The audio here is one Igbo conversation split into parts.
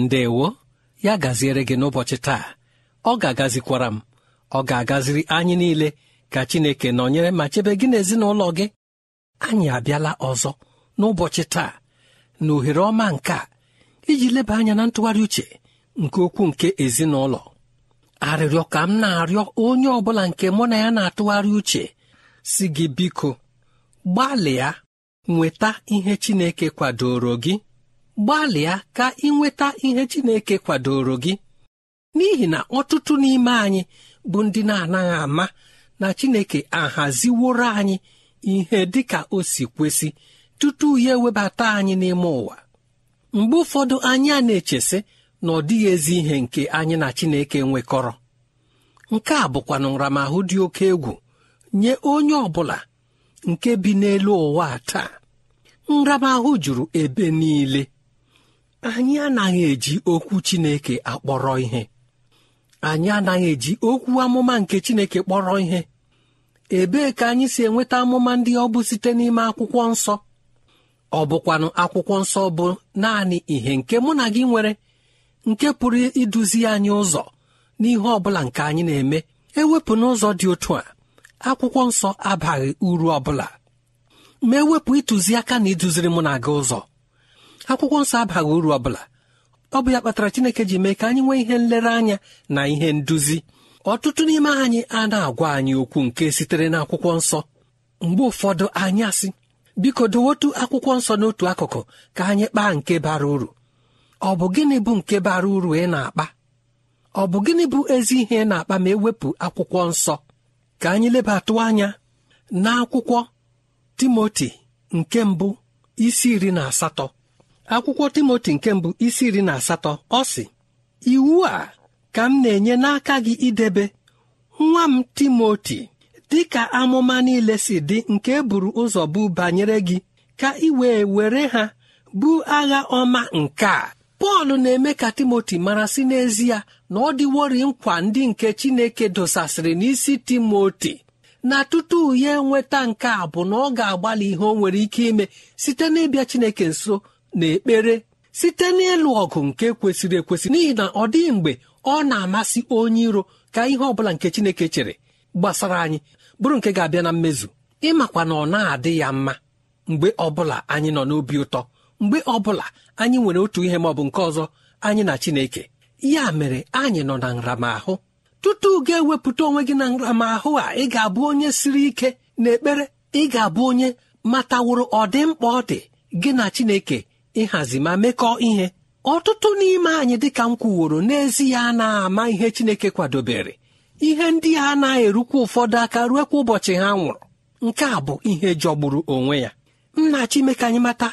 ndewo ya gaziere gị n'ụbọchị taa ọ ga-agazikwara m ọ ga-agaziri anyị niile ka Chineke nọnyere ma chebe gị n'ezinụlọ gị anyị abịala ọzọ n'ụbọchị taa na ohere ọma nke a iji leba anya na ntụgharị uche nke okwu nke ezinụlọ arịrịọ ka m na-arịọ onye ọ bụla nke mụ na ya na-atụgharị uche si gị biko gbalịa nweta ihe Chineke kwadoro gị gbalịa ka ịnweta ihe Chineke kwadoro gị n'ihi na ọtụtụ n'ime anyị bụ ndị na-anaghị ama na Chineke ahaziworo anyị ihe dị ka o si kwesị tutu ya ewebata anyị n'ime ụwa mgbe ụfọdụ anyị a na-echesị na ọ dịghị ezi ihe nke anyị na Chineke nwekọrọ nke a bụkwa nramahụ dị oke egwu nye onye ọ bụla nke bi n'elu ụwa taa nramahụ juru ebe niile anyị anaghị eji okwu Chineke akpọrọ ihe anyị anaghị eji okwu amụma nke Chineke kpọrọ ihe ebee ka anyị si enweta amụma ndị ọ bụ site n'ime akwụkwọ nsọ ọ bụkwanụ akwụkwọ nsọ bụ naanị ihe nke mụ na gị nwere nke pụrụ iduzi anyị ụzọ n'ihe ọ bụla nke anyị na-eme ewepụ n'ụzọ dị otu a akwụkwọ nsọ abaghị uru ọ bụla ma ewepụ ịtụziaka na iduziri mụ na gị ụzọ akwụkwọ nsọ abaghị uru ọ bụla ọ bụ ya kpatara Chineke ji mee ka anyị nwee ihe nlereanya na ihe nduzi ọtụtụ n'ime anyị a na-agwa anyị okwu nke sitere na akwụkwọ nsọ mgbe ụfọdụ anyị asị biko dowotu akwụkwọ nsọ n'otu akụkụ ka anyị kpaa nke bara uru ọ bụ gịnị bụ nke bara uru ị na-akpa ọ bụ gịnị bụ ezi ihe ị na-akpa ma ewepụ akwụkwọ nsọ ka anyị lebatụ anya na akwụkwọ Timoti nke mbụ isi iri na asatọ akwụkwọ timoti nke mbụ isi iri na asatọ ọ sị iwu a ka m na-enye n'aka gị idebe nwa m timoti dị ka amụma niile si dị nke e buru ụzọ bụ banyere gị ka ị wee were ha bụ agha ọma nke a pọl na-eme ka timoti mara si n'ezie na ọ dịwori nkwa ndị nke chineke dosasịrị n'isi timoti na tutu ya enweta nke a bụ na ọ ga-agbalị ihe o nwere ike ime site n'ịbịa chineke nso n'ekpere site n'ịlụ ọgụ nke kwesịrị ekwesị n'ihi na ọ dịghị mgbe ọ na-amasị onye iro ka ihe ọ bụla nke Chineke chere gbasara anyị bụrụ nke ga-abịa na mmezu ịmakwa na ọ na-adị ya mma mgbe ọbụla anyị nọ n'obi ụtọ mgbe ọbụla anyị nwere otu ihe ma ọ bụ nke ọzọ anyị na Chineke ya mere anyị nọ na nramahụ tutu ga-ewepụta onwe gị na nramahụ a ị ga-abụ onye siri ike ekpere ị ga-abụ onye mataworo ọdịmkpa ọ dị gị na Chineke ịhazi ma mekọọ ihe ọtụtụ n'ime anyị dịka m kwuworo n'ezi ya na-ama ihe Chineke kwadobere ihe ndị a na-erukwa ụfọdụ aka ruekwa ụbọchị ha nwụrụ nke a bụ ihe jọgburu onwe ya nna chimeke anyị mata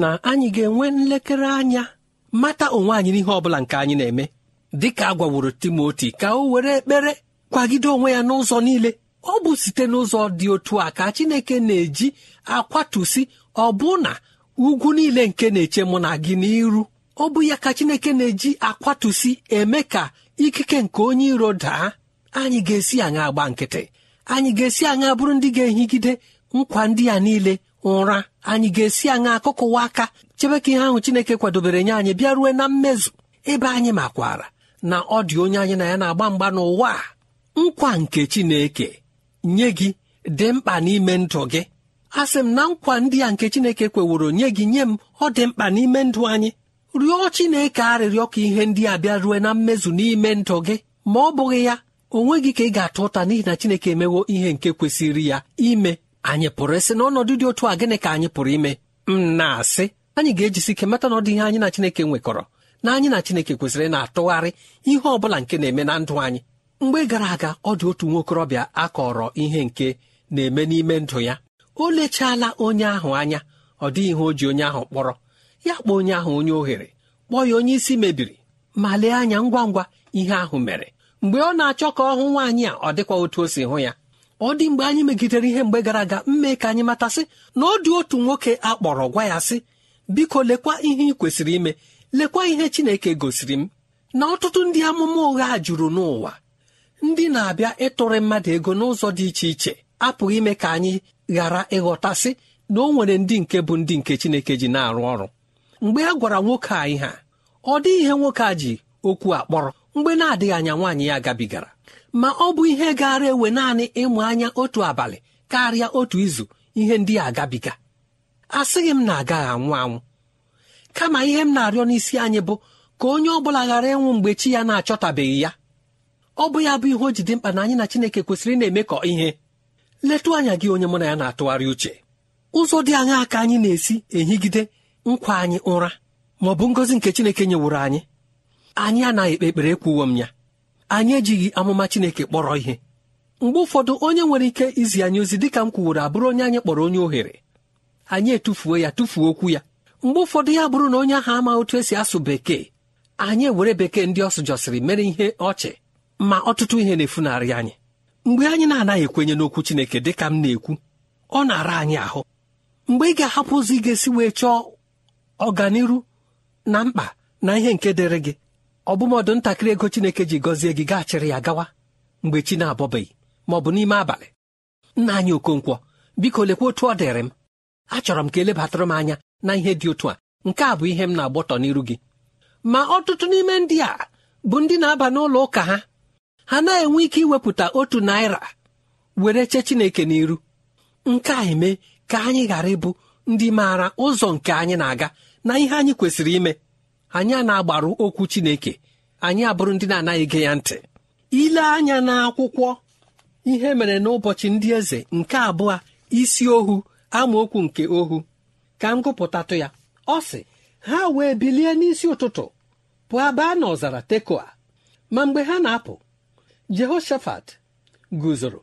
na anyị ga-enwe nlekere anya mata onwe anyị n'ihe ọ bụla nke anyị na-eme dịka a gwaworo Timoti ka o were ekpere kwagide onwe ya n'ụzọ niile ọ bụ site n'ụzọ dị otu a ka Chineke na-eji akwatusi ọbụna ugwu niile nke na-eche mụ na gị n'iru ọ bụ ya ka chineke na-eji akwatusi eme ka ikike nke onye iro daa anyị ga-esi aṅa agba nkịtị anyị ga-esi aṅa bụrụ ndị ga-ehigide nkwa ndị a niile ụra anyị ga-esi aṅa ụwa aka chebe ka ihe ahụ chineke kwadobere nye anyị bịa rue na mmezu ebe anyị makwara na ọ dị onye anyị na ya na-agba mgba n'ụwa nkwa nke chineke nye gị dị mkpa n'ime ndụ gị a sị m na nkwa ndị a nke Chineke kweworo nye gị nye m ọ dị mkpa n'ime ndụ anyị rịọ Chineke arịrịọ ka ihe ndị a bịa rue na mmezu n'ime ndụ gị ma ọ bụghị ya onwe gị ka ị ga-atụ ụta n'ihi na Chineke emewo ihe nke kwesịrị ya ime anyị pụrụ ịsị na ọnọdụ dị otu a gịnị ka anyị pụrụ ime m na-asị anyị ga-ejisi ike mata na ọ dị ihe anyị na Chineke nwekọrọ na anyị na Chineke kwesịrị na-atụgharị ihe ọ bụla nke na-eme na ndụ anyị mgbe gara aga ọ dị otu nwa okorobịa a kọrọ ihe nke na-eme n'ime ndụ ya o lechala onye ahụ anya ọ dịghị ihe o ji onye ahụ kpọrọ ya kpọọ onye ahụ onye ohere kpọọ ya onye isi mebiri ma lee anya ngwa ngwa ihe ahụ mere mgbe ọ na-achọ ka ọ hụ nwaanyị a ọ dịkwa otu o si hụ ya ọ dị mgbe anyị megidere ihe mgbe gara aga mme ka anyị matasị na ọ dị otu nwoke a kpọrọ gwa ya sị biko lekwa ihe ị kwesịrị ime lekwa ihe chineke gosiri m na ọtụtụ ndị amụma ụgha juru n'ụwa ndị na-abịa ịtụrụ mmadụ ego n'ụzọ dị iche iche apụghị ime ka anyị ghara ịghọtasị na o nwere ndị nke bụ ndị nke Chineke ji na-arụ ọrụ mgbe a gwara nwoke a ihe ọ dị ihe nwoke a ji okwu akpọrọ mgbe na-adịghị anya nwaanyị ya gabigara ma ọ bụ ihe gaara ewe naanị ịmụ anya otu abalị karịa otu izu ihe ndị a gabiga asịghị m na agaghị anwụ anwụ kama ihe m na-arịọ n'isi anyị bụ ka onye ọ bụla ghara ịnwụ mgbe chi ya na-achọtabeghị ya ọ bụ ya bụ ihe o ji dị mkpa na anyị na Chineke kwesịrị na-emekọ ihe letụ anya gị onye mụ na ya na-atụgharị uche ụzọ dị anya ka anyị na-esi ehigide nkwa anyị ụra ma ọ bụ ngọzi nke Chineke nyewuru anyị anyị anaghị ekpe ekpere ekwuwo m ya anyị ejighị amụma Chineke kpọrọ ihe mgbe ụfọdụ onye nwere ike izi anyị ozi dịka m kwuworo abụrụ onye anyị kpọrọ onye ohere anyị etufuo ya tufuo okwu ya mgbe ụfọdụ ya bụrụ na onye ahụ ama otu esi asụ bekee anyị ewere bekee ndị ọ sụjọsịrị mere ihe ọchị ma ọtụtụ ihe na-efunarị anyị mgbe anyị na-anaghị ekwenye n'okwu Chineke dị ka m na-ekwu ọ na-ara anyị ahụ mgbe ị ga-ahapụ ụzọ ị ga-esi wee chọọ ọganiru na mkpa na ihe nke dịrị gị ọbụmọdụ ntakịrị ego Chineke ji gọzie gị gaachịrị ya gawa mgbe chi na-abọbeghị ma ọ bụ n'ime abalị nna anyị Okonkwo biko lekwa otu ọ dịrị m achọrọ m ka elebatara m anya na ihe dị otu a nke a bụ ihe m na-agbọtọ n'iru gị ma ọtụtụ n'ime ndị a bụ ndị na-aba n'ụlọ ụka ha ha na-enwe ike iwepụta otu naira were chee chineke n'iru nke a eme ka anyị ghara ịbụ ndị maara ụzọ nke anyị na-aga na ihe anyị kwesịrị ime anyị a na-agbaru okwu chineke anyị abụrụ ndị na-anaghị ya ntị ile anya n'akwụkwọ ihe mere n'ụbọchị ndị eze nke abụọ isi ohu amaokwu nke ohu ka m gụpụtatụ ya ọ sị ha wee bilie n'isi ụtụtụ pụọ baa n'ọzara tekoa ma mgbe ha na-apụ jehoshafat guzoro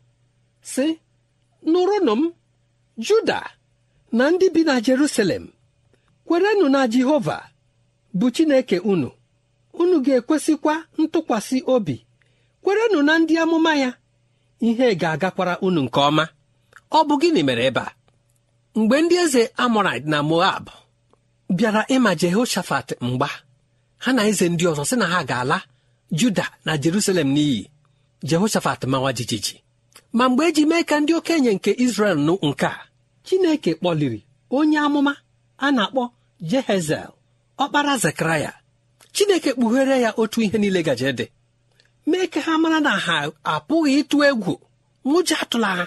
sị nụrụnụ m juda na ndị bi na jerusalem kwerenụ na jehova bụ chineke unu unu ga-ekwesịkwa ntụkwasị obi kwerenụ na ndị amụma ya ihe ga-agakwara unu nke ọma ọ bụ gịnị mere ebe a mgbe ndị eze amorait na moab bịara ịma jehoshafat mgba ha na eze ndị ọzọ sị na ha ga-ala juda na jerusalem n'iyi jehoshafat mawa jijiji ma mgbe eji mee ka ndị okenye nke izrel nụ nke a chineke kpọliri onye amụma a na-akpọ jehezel ọkpara zekaraya chineke kpughere ya otu ihe niile gaje dị mee ka ha mara na ha apụghị ịtụ egwu nwụja atụla ha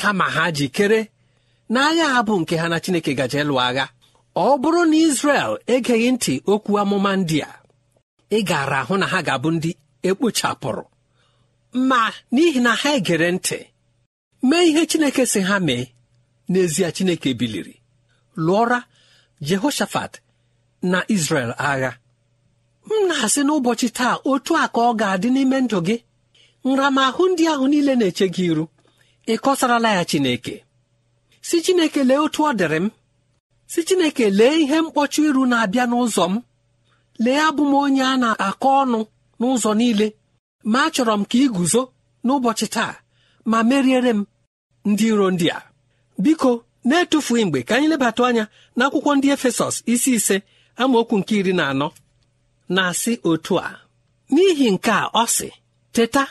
kama ha jikere na agha ha nke ha na chineke gaje lụọ agha ọ bụrụ na izrel egeghị ntị okwu amụma ndị a ị gara ahụ na ha ga-abụ ndị ekpochapụrụ ma n'ihi na ha egere ntị mee ihe chineke si ha mee n'ezie chineke biliri lụọra jehoshafat na israel agha m na-asị n'ụbọchị taa otu a ka ọ ga-adị n'ime ndụ gị nramahụ ndị ahụ niile na-eche gị iru ị kọsarala ya chineke si chineke lee otu ọ dịrị m si chineke lee ihe mkpọchi iru na-abịa n'ụzọ m lee abụ m onye a na-akọ ọnụ n'ụzọ niile ma achọrọ m ka ị guzo n'ụbọchị taa ma meriere m ndị iro ndị a biko na-etufughị mgbe ka anyị lebata anya n'akwụkwọ ndị efesọs isi ise amaokwu nke iri na anọ na-asị otu a n'ihi nke a ọ sị teta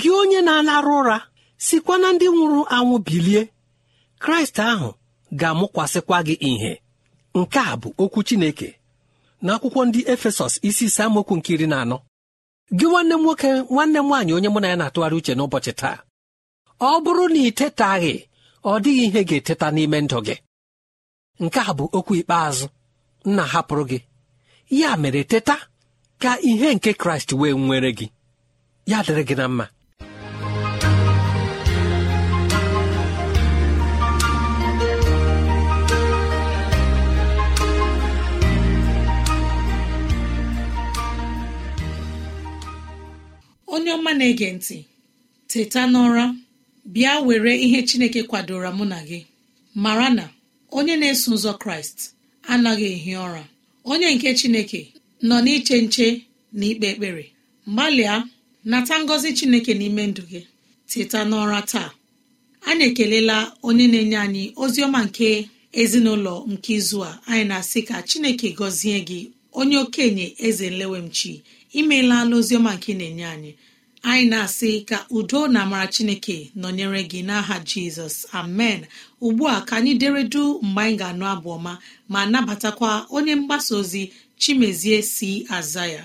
gị onye na-alarụ ụra sikwa na ndị nwụrụ anwụ bilie kraịst ahụ ga-amụkwasịkwa gị ìhè nke a bụ okwu chineke n'akwụkwọ ndị efesọs isi ise amaokwu nke iri na anọ gị nwanne m nwoke nwanne m nwaanyị onye mụ na ya na-atụgharị uche n'ụbọchị taa ọ bụrụ na ị tetaghị ọ dịghị ihe ga-eteta n'ime ndụ gị nke a bụ okwu ikpeazụ nna hapụrụ gị ya mere teta ka ihe nke kraịst wee nwere gị ya dịrị gị na mma onye ọma na-ege ntị teta n'ụra bịa were ihe chineke kwadoro mụ na gị mara na onye na-eso ụzọ kraịst anaghị ehi ụra onye nke chineke nọ n'iche nche na ikpe ekpere gbalịa nata ngọzi chineke n'ime ndụ gị teta n'ụra taa anyị ekelela onye na-enye anyị ozi ọma nke ezinụlọ nke izu a anyị na-asị ka chineke gọzie gị onye okenye eze nlewemchi imeela ala oziọma nke na-enye anyị anyị na-asị ka udo na amara chineke nọnyere gị n'aha jizọs amen ugbu a ka anyị deredu mgbe anyị ga-anụ abụ ọma ma nabatakwa onye mgbasa ozi chimezie si aza ya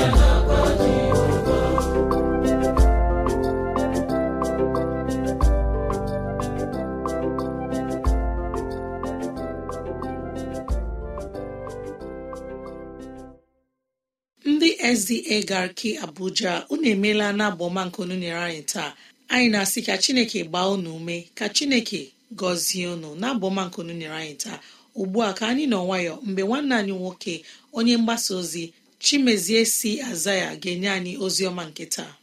ozi egarki abuja unu emeela na abụọma nke nyere anyị taa anyị na-asị ka chineke gbaa unu ume ka chineke gọzie unu na abụọma nke nyere anyị taa ugbu a ka anyị nọ nwayọ mgbe nwanne anyị nwoke onye mgbasa ozi chimezie si aza ya ga-enye anyị ozi ọma nke taa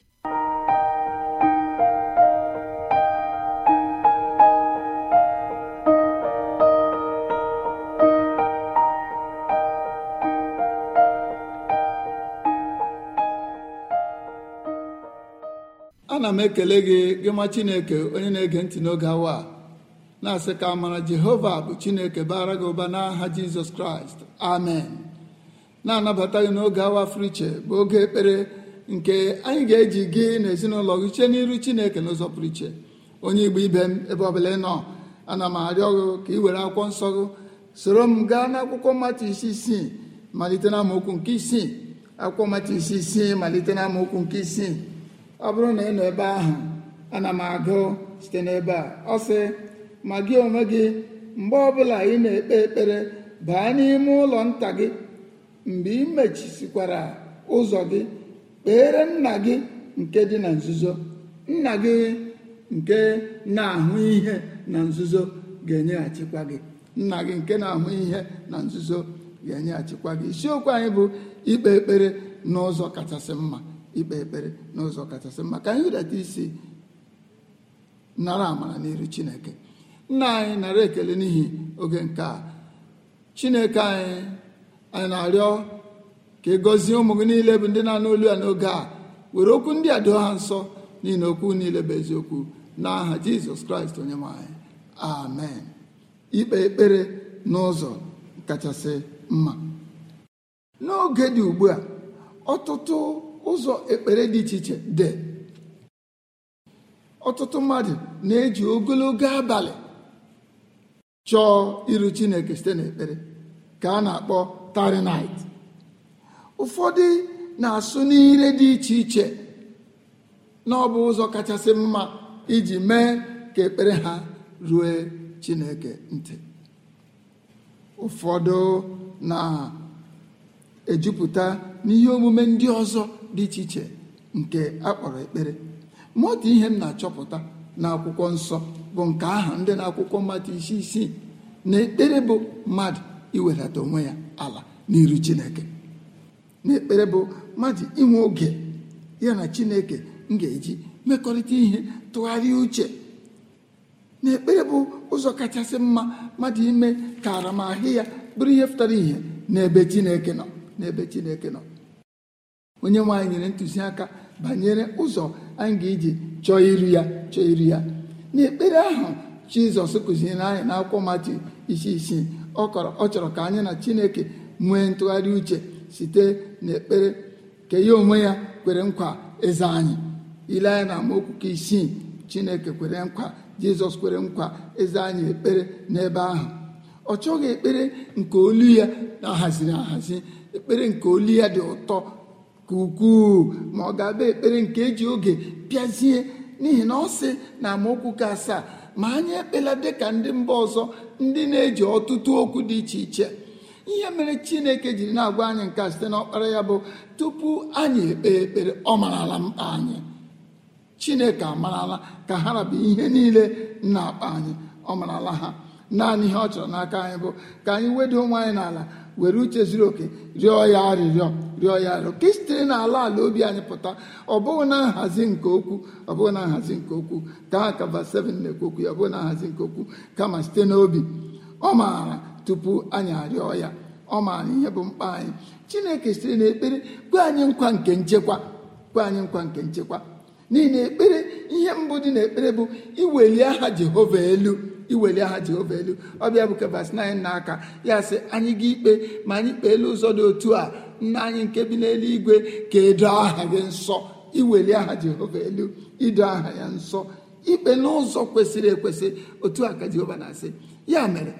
m ekele gị gị ma chineke onye na-ege ntị n'oge awa na-asị ka amara jehova bụ chineke bara gị ụba n'aha jizọs kraịst amen na-anabata gị n'oge awa friche bụ oge ekpere nke anyị ga-eji gị na ezinụlọ gị chee n'iru chineke n'ụzọ pụrụ iche onye igbo ibe m ebe ọbụla ị nọ ana m arịọ gị ka ị were akwụkwọ nsọ gị soro m gaa n'akwụkwọ mmatụ isi isii malite na amaokwu nke isii akwụkwọ mmatụ isi isii malite na nke isii ọ bụrụ na ị nọ ebe ahụ ana m agụ site n'ebe a ọ sị ma gị onwe gị mgbe ọbụla ị na-ekpe ekpere baa n'ime ụlọ nta gị mgbe ị mechisikwara ụzọ gị kpeere nna gị nke dị na nzuzo nna gị nke na-ahụ ihe na nzuzo ga-enyeghachikwa gị nna gị nke na-ahụ ihe na nzuzo ga-enyeghachikwa gị isiokwu anyị bụ ikpe ekpere n'ụzọ kachasị mma ikpe ekpere n'ụzọ kachasị mma ka anyị hụdata isi nara amara n'iru chineke nna anyị nara ekele n'ihi oge nke a chineke anyị anyị na-arịọ ka ị e gọzie ụmụ gị niile bụ ndị na-anụ olu ya n'oge a were okwu ndị a doo ha nsọ n'ihi na okwu niile bụ eziokwu n'aha jizọs kraịst onye nwanyị amen ikpe ekpere n'ụzọ kachasị mma n'oge dị ugbu a ọtụtụ ụzọ ekpere dị iche iche dị ọtụtụ mmadụ na-eji ogologo abalị chọọ iru chineke site n'ekpere ka a na-akpọ tarinait ụfọdụ na-asụ n'ire dị iche iche na ọ bụ ụzọ kachasị mma iji mee ka ekpere ha rue chineke ntị ụfọdụ na-ejupụta n'ihe omume ndị ọzọ dị iche iche nke akpọrọ ekpere ma dị ihe m na-achọpụta n'akwụkwọ nsọ bụ nke aha ndị na-akwụkwọ mmadụ isi isii na ekpere bụ mmadụ iwedata onwe ya ala n'iru chineke na ekpere bụ mmadụ inwe oge ya na chineke m ga-eji mmekọrịta ihe tụgharịa uche na ekpere bụ ụzọ kachasị mma mmadụ ime ka aramahụ ya bụrụ ihe pụtara ihe n'ebe chineke nọ n'ebe chineke nọ onye nwe nyere ntụziaka banyere ụzọ anyị ga-eji chọọ iri ya chọọ iri ya n'ekpere ahụ jizọs kụziri anyị na akwụkwọ mati isi isii ọ chọrọ ka anyị na chineke nwee ntụgharị uche site n'ekpere ke ya onwe ya kwere nkwa eze anyị ile anyị na amaokwu isii chineke kwere nkwa jizọs kwere nkwa eze anyị ekpere n'ebe ahụ ọ chọghị ekpere nke olu ya na-ahaziri ahazi ekpere nke olu ya dị ụtọ ka ukwuu ma ọ ga-aba ekpere nke eji oge pịazie n'ihi na ọ sị na amaokwu ka asaa ma anyị ekpela dịka ndị mba ọzọ ndị na-eji ọtụtụ okwu dị iche iche ihe mere chineke jiri na-agwa anyị nke site n'ọkpara ya bụ tupu anyị ekpe ekpere ọ marala mkpa anyị chineke amarala ka ha rabụ ihe niile na-akpa anyị ọ marala ha naanị ihe ọ chọrọ n'aka anyị bụ ka anyị wedo onwe anyị n'ala were uche zuru oke rịọ ya arịrịọ rịọ ya arịọ ka isitere n'ala ala obi anyị pụta ọ bụghị na nhazi nke okwu ọ bụghị na nhazi nke okwu ka aka verse 7 na-ekwu okwu ya ọ bụghị na nhazi nke okwu kama site n'obi ọ maara tupu anyị arịọ ya ọ maara ihe bụ mkpa anyị chineke sitere n'ekpere kwe anyị nkwa nke nchekwa kwe anyị nkwa nke nchekwa n'ihi na ekpere ihe mbụ dị n'ekpere bụ iweli aha jehova elu iweli aha jehova elu ọ bịa bụ kebas na anyị n'aka ya sị anyị ga ikpe ma anyị kpee elu ụzọ dị otu a nna anyị nke bi n'eluigwe ka edo aha gị nsọ iweli aha jehova elu ido aha ya nsọ ikpe n'ụzọ kwesịrị ekwesị otu a ka jehova na-asị ya mere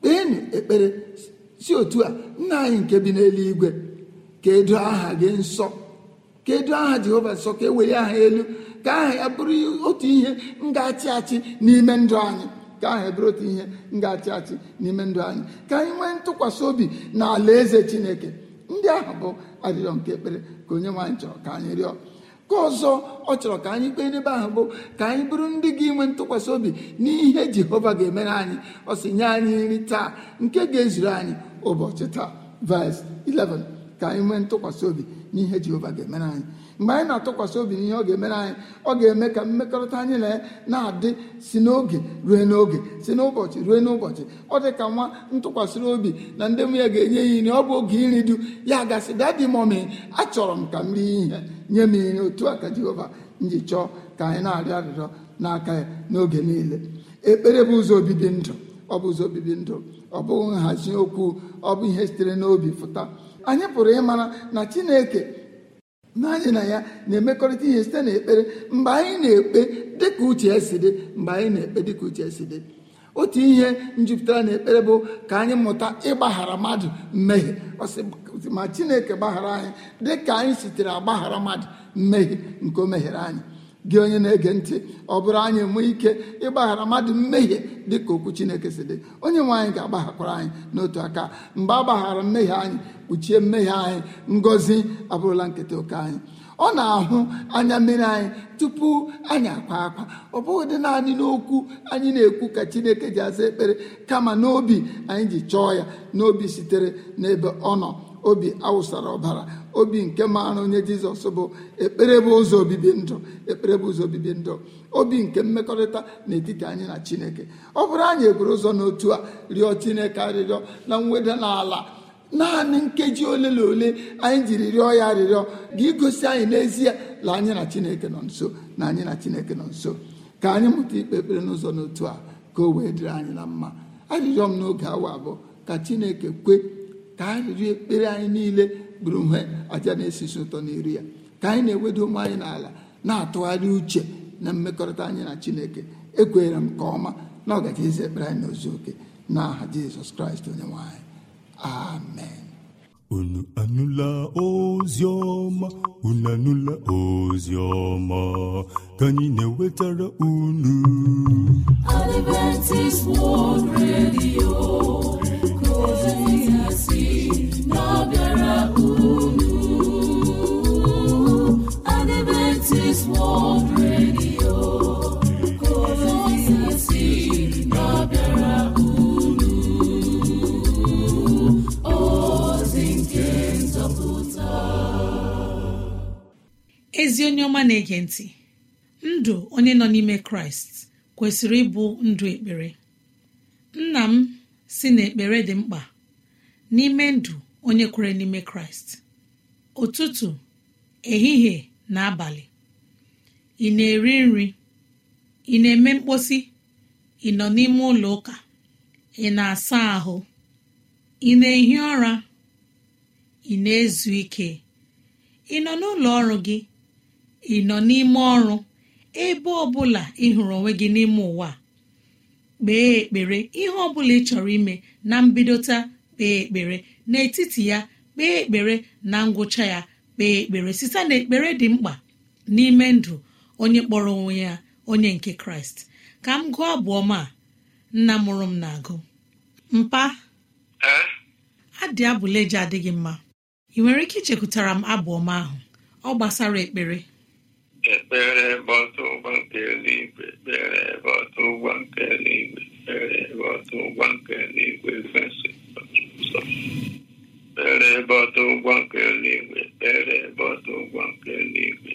kpeenụ ekpere si otu a nna anyị nke bi n'eluigwe ka edo aha gị nsọ ka edo aha jehova nsọ ka eweli aha elu ka aha ya bụrụ otu ihe ngachi achị n'ime ndụ anyị ka aha bụrụ otu ihe ngachi achị n'ime ndụ anyị ka anyị nwee ntụkwasị obi na ala eze chineke ndị ahụ bụ arịrịọ nke ekpere ka onye nwaanyị chọrọ ka anyị rịọ ka ọzọ ọ chọrọ ka anyị kpee n'ebe ahụ bụ ka anyị bụrụ ndị gị nwe ntụkwasị obi n'ihe jehova ga-emere anyị ọ sị nye anyị nri taa nke ga-ezuru anyị ụbọchị taa vaịs 11 ka anyị nwee ntụkwasị obi n'ihe jehova ga-emere anyị mgbe anyị na-atụkwasị obi n'ihe ọ ga-emere anyị ọ ga-eme ka mmekọrịta anyị na-adị na si n'oge ruo n'oge si n'ụbọchị ruo n'ụbọchị ọ dị ka nwa ntụkwasịrị obi na ndị mụ ya ga-enye ya nri ọ bụ oge iri du ya gasị dadi mọmi achọrọ m ka m rie ihe nye m ihe otu a ka Jehova nji chọọ ka anyị na-arịọ arịrịọ n'aka ya n'oge niile ekpere bụ ụzọ obibi ndụ ọ bụ ụzọ obibi ndụ ọ bụghị nhazi okwu ọ bụ ihe sitere n'obi pụta anyị pụrụ ịmara na Chineke mgbe na ya na-emekọrịta ihe site n'ekpere mgbe anyị na-ekpe dịka uche si dị mgbe anyị na-ekpe dịka uche si dị otu ihe njupụtara na ekpere bụ ka anyị mụta ịgbaghara mmadụ mmehie ma chineke gbaghara anyị dịka anyị sitere agbaghara mmadụ mmehie nke o meghere anyị gị onye na-ege ntị ọ bụrụ anyị enwe ike ịgbaghara mmadụ mmehie dị ka okwu chineke si dị onye nwe anyị ga-agbaghakwara anyị n'otu aka mgbe a gbaghara mmehie anyị kpuchie mmehie anyị ngọzi abụrụla nketa oke anyị ọ na-ahụ anya mmiri anyị tupu anyị akwa akwa ọ bụghị dị naanị n'okwu anyị na-ekwu ka chineke ji aza ekpere kama n'obi anyị ji chọọ ya n'obi sitere n'ebe ọ nọ obi awụsara ọbara obi nke maara onye jizọs bụ ekpere bụ ụzọ obibi ndụ ekpere bụ ụzọ obibi ndụ obi nke mmekọrịta n'etiti anyị na chineke ọ bụrụ anyị ekwere ụzọ n'otu a rịọ chineke arịrịọ na mweda n'ala naanị nkeji ole na ole anyị jiri rịọ ya arịrịọ ga-igosi anyị n'ezie na anyị na chineke nọ nso na anyị na chineke nọ nso ka anyị mụta ikpe ekpere n'ụzọ n'otu a ka o wee dịrị anyị na mma arịrịọ m n'oge awa abụọ ka chineke kwe ka anyị riri ekpere anyị niile bụrụ nwe aja na-esisi ụtọ n'iru ya ka anyị na ewedu ụmụ anyị n'ala na-atụgharị uche na mmekọrịta anyị na chineke ekwenyere m nke ọma na ọ gaji eze ekpere anyị n'ozu oke na aha jizọs kraịst onye nwanyị amen unu anụla ozi ọma unu anụla ozi ọma ka anyị na-ewetara unu Adventist World Radio ezi onye ọma na-ege ntị ndụ onye nọ n'ime kraịst kwesịrị ịbụ ndụ ekpere nna m si na ekpere dị mkpa n'ime ndụ onye kwere n'ime kraịst ụtụtụ ehihie na abalị ị na-eri nri ị na-eme mkposi ị nọ n'ime ụlọ ụka ị na-asa ahụ ị na-ehi ụra ị na-ezu ike ị nọ n'ụlọ ọrụ gị ị nọ n'ime ọrụ ebe bụla ị hụrụ onwe gị n'ime ụwa kpee ekpere ihe ọ bụla ị chọrọ ime na mbidota kpee ekpere n'etiti ya kpee ekpere na ngwụcha ya kpee ekpere site na ekpere dị mkpa n'ime ndụ onye kpọrọ onwe ya onye nke kraịst ka m gụọ abụ ọma nna mụrụ m na-agụ mpa adị abụleje adịghị mma ị nwere ike ichekwutara m abụ ọma ahụ ọ gbasara ekpere ekpere ebe ọtụ ụgbọ nke eluigwe ekpere ebe ọtụ ụgbọ nke eluigwe ekpere ebe ọtụ ụgbọ nke eluigwe kwesị ekpere ebe ọtụ ụgbọ nke eluigwe ekpere ebe ọtụ ụgbọ nke eluigwe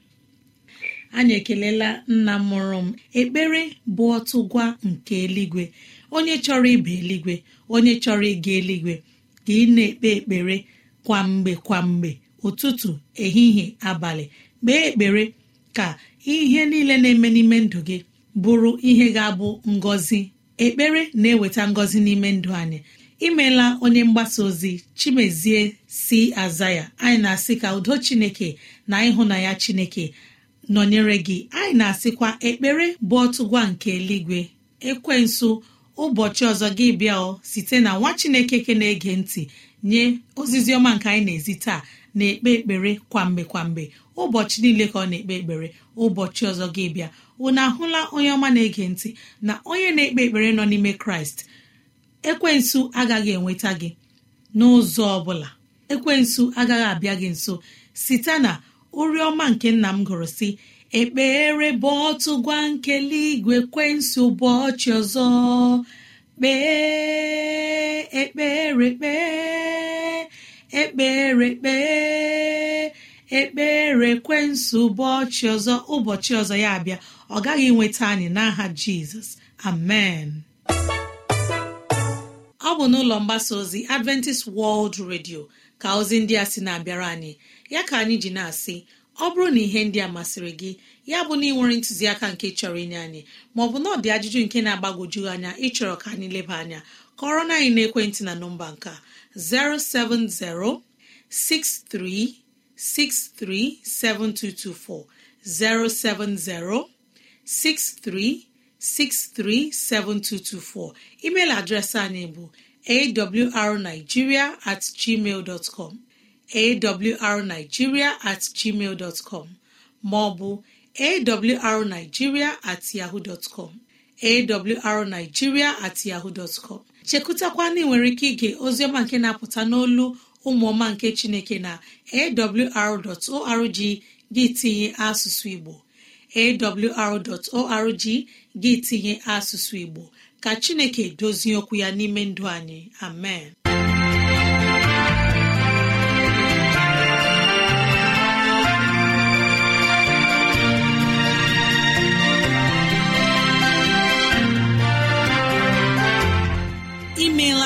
anyị ekelela nna mụrụ m ekpere bụ ọtụgwa nke eluigwe onye chọrọ ịba eluigwe onye chọrọ ịga eluigwe ka ị na-ekpe ekpere kwamgbe mgbe ụtụtụ ehihie abalị kpee ekpere ka ihe niile na-eme n'ime ndụ gị bụrụ ihe ga-abụ ngọzi ekpere na-eweta ngọzi n'ime ndụ anyị imela onye mgbasa ozi chimezie si aza ya anyị na-asị ka udo chineke na ịhụnanya chineke nọnyere gị anyị na-asịkwa ekpere bụ ọtụgwa nke eluigwe ekwensu ụbọchị ọzọ gị bịa site na nwa chineke ke na-ege ntị nye ozizi ọma nke anyị na-ezi taa na-ekpe ekpere kwamgbe kwamgbe ụbọchị niile ka ọ na-ekpe ekpere ụbọchị ọzọ gị bịa na ahụla onye ọma na-ege ntị na onye na-ekpe ekpere nọ n'ime kraịst ekwensu agaghị enweta gị n'ụzọ ọ bụla ekwensu agaghị abịa gị nso site na oriọma nke nna m gụrụ si ekpere bụ ọtụ gwa nkele igwe kwensị ụbọchị ọzọ kpee ekpere kpee ekpere kpee ekpere ụbọchị ọzọ ụbọchị ọzọ ya abịa ọ gaghị nweta anyị n'aha jizọs amen ọ bụ n'ụlọ mgbasa ozi adventist world radio ka ozi ndị a sị na-abịara anyị ya ka anyị ji na-asị ọ bụrụ na ihe ndị a masịrị gị ya bụ na ị nwere ntụziaka nke chọrọ inye anyị maọbụ na ọ dị ajụjụ nke na-agbagwoju anya ịchọrọ ka anyị leba anya kọrọ na anyị na ekwentị na nọmba nka 07063637224 070 63637224 email adreesị anyị bụ awrnigeria at gmail dot com awrnigeria at gmail dọtcọm maọbụ awrnigeria at yahoo dọtcọm awrnigeria at yahoo dọtcọm ozi ọma nwere ike ige ozioma nke na-apụta n'olu ụmụọma nke chineke na awr.org gị tinye asụsụ igbo awr.org gị tinye asụsụ igbo ka chineke dozie okwu ya n'ime ndụ anyị amen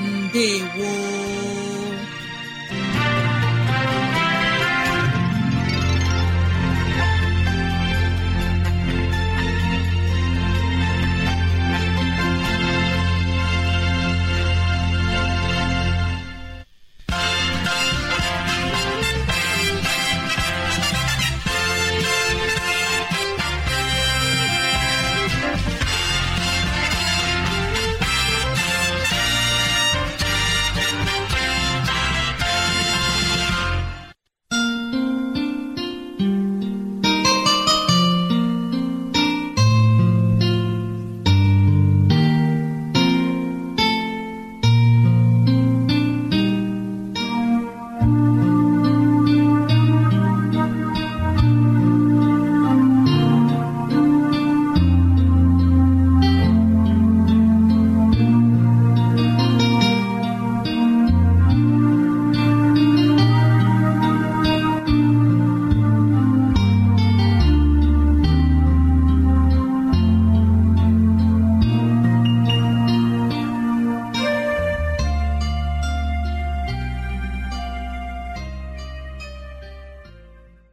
Ndewo